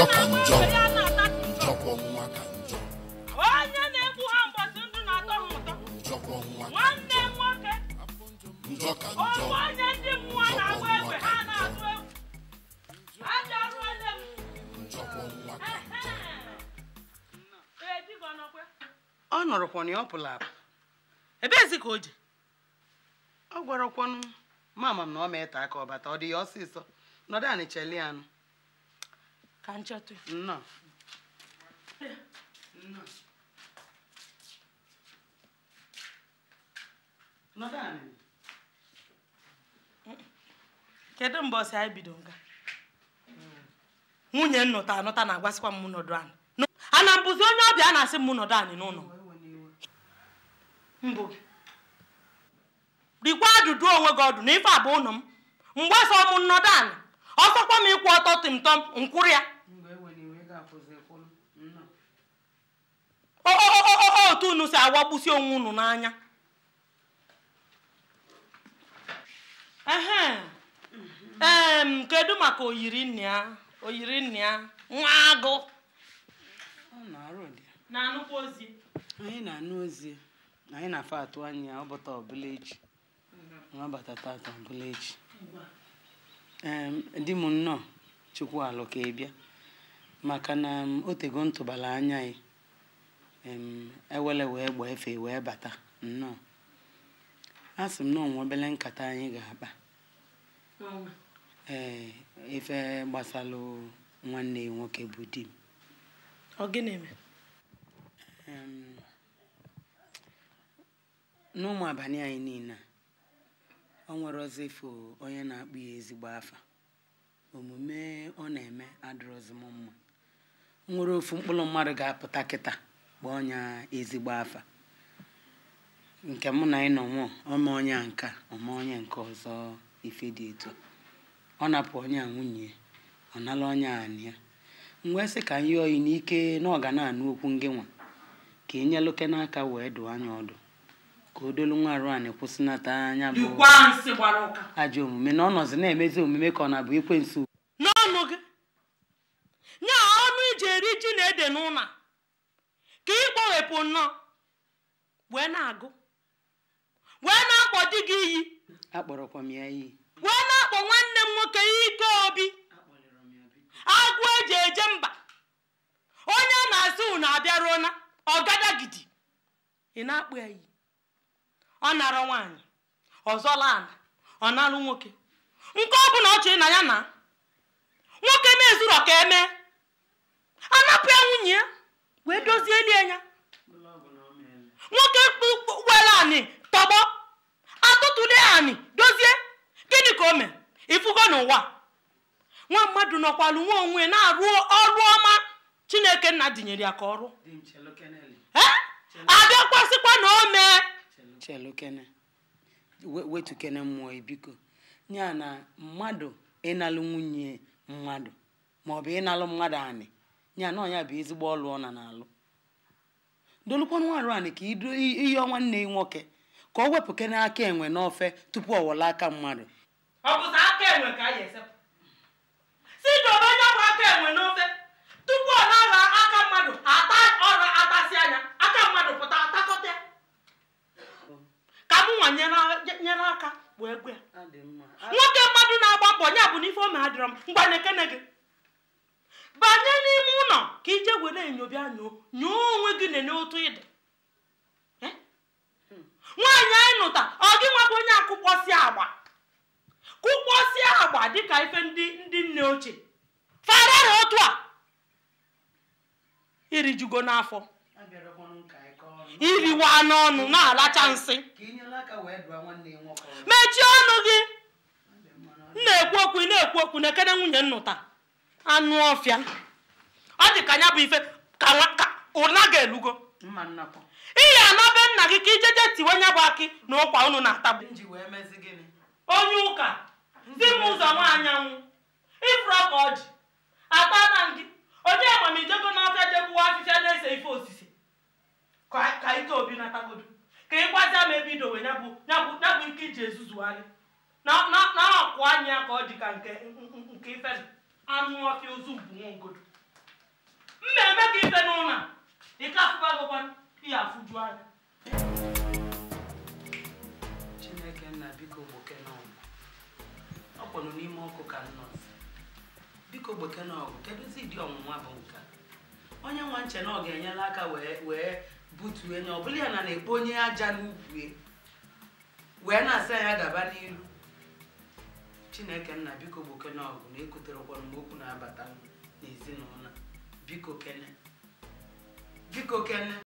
njọ ka njọ njọkwọ nwa ka njọ onye njọ ka ndị mmụọ na-agba egbe ha na egwu njọkwọ nwa ka ọ nọrọkwa ọ pụrụ apụ ebezi ka o ji ọ gwarakwanụ mama m na ọ ma ete aka ọbata ọ dị ya ọsịsọ nọdụ anị ka m chọta nna kedu mgbe ọsị anyị bido nga nwunye nnụta anụta na-agwasịkwa m nọdụ anyị ana mbụzi onye ọbịa a na-asị m nọdụ anyị n'ụlọ mbụ rikwa ajụjụ onwe gị ọdụ na ife abụ ụlọ m mgbe ọsọ m nọdụ anyị ọsọkwa m ịkwụ ọtọ tịmtọm nkwụrụ ya Oh, oh, oh, otu unu si agbagbusi onwe unu n'anya kedu maka oyiri nne ya oyiri nne ya nwa agụ na-anụkwa ozi anyị na-anụ ozi anyị na-afọ atụ anya ọbụta ọbụla echi nwa mm-hmm. bata tata ọbụla echi di m nnọọ chukwu alụ ka ị bịa maka na um, otego ntụbala anya ya, ewele wee gbaa efe wee bata nnọọ a sị m na onwe obele nkata anyị ga-akpa ee efe gbasalụ nwanne nwoke bụ di m ọ eme n'ụmụ abalị anyị niile ọ nwere ọzọ ifo onye na-akpụ ya ezigbo afa omume ọ na-eme adịrọzi m mma nwere ofu mkpụrụ mmadụ ga-apụta kịta kpọọ ọnya ezigbo afa nke mụ na ịnọ nwụọ ọma onye nka ọma onye nke ọzọ ife dị etu ọ napụ onye nwunye ọ nala ọnya anị ya mgbe sị ka nye oyi n'ike na ọ okwu ngị nwa ka ị e nyeluke n'aka wee dụọ anya ọdụ ka o dolu nwa arụ kwụsịnata anya bụ ajọ omume na ọ nọzi na-emezi omume ka ọ na-abụ ekwensu n'ọnụ gị nye ọnụ iji eri ji na ede n'ụlọ ka ị kpọwepụ nnọọ wee na-agụ wee na-akpọ di gị iyi wee na-akpọ nwanne m nwoke ike obi agụ eji eje mba onye a na-asị unu abịaruo na ọgadagidi ị na-akpụ ya iyi ọ nara nwaanyị ọzọla ala ọ na-alụ nwoke nke ọ bụla ọ chọrọ na ya na nwoke na-ezu mezuru ka emee anapụ ya nwunye ya wee dozie elie ya nwoke were anị tọgbọ atụtụle anị dozie gịnị ka o ifu ifugo n'ụwa nwa mmadụ nọkwalụ onwe na-arụ ọrụ ọma chineke nna dinyere ya ka ọrụ abịakwasịkwa na o mee mmụọ biko ya na mmadụ ịnalụ nwunye mmadụ maọbụ ịnalụ mmadụ anị ya na bụ ezigbo ọlụ ọ na na-alụ dolukwanụ nwaanyị ka iyọọ nwanne ya nwoke ka o wepụ aka enwe n'ofe tupu ọ wọla aka mmadụ ọ aka enwe ka anyị esepụ si onye aka enwe n'ofe tupu ọ na aka mmadụ ata aka nwoke mmadụ na-agba mbọ bụ n'ife ome adịrọ m ka ije were enyo nyoo nyoo onwe gị nene otu ịda nwaanyị anyị nụta ọ gị nwabụ onye akụkpọsi agba kụkpọsi agba dịka ife ndị ndị nne ochie farara otu a irijugo n'afọ iriwa n'ọnụ na-alacha nsị mechie ọnụ gị na-ekwu okwu na-ekwu okwu na ekene nwunye nnụta anụ ọfịa ọ dị ka anya bụ ife ka ụna ga-elugo ihe anabe nna gị ka ijeje tiwe nya bụ akị na ụkwa unu na-atagbu onye ụka di m ụzọ nwaanyanwụ ifuru ọka ọjị ata na ngị onye amamijego n'ọfịa jegbuwa afịfịa na-ese ife osisi ka ike obi natagodu ka ị gwazia ma ebe idowe nyabụ nke iji ezuzugharị na akwụ anya ka ọ dị ka nke ife anụ ọfịa ozu mbụ nwa ogodo na-eme ka ife n'ụlọ ka afụba gụkwara ihe afụju anya chineke nna biko gbokenọgụ ọ kpọrọ n'ime ọkụ ka nnọzi biko gbokenọgụ kedụzi dị ọnwụnwa bụ nke onye nwa nche na ọ ga enyela aka wee butuo enye ọ bụla ya na na-ekpo onye aja n'ugwu wee na-asa ya gaba n'iru chineke nna biko gbokenọgụ na ekotere ụkwọrọ mgbe okwu na-abata n'ezinụlọ Vigo Ken Vigo Ken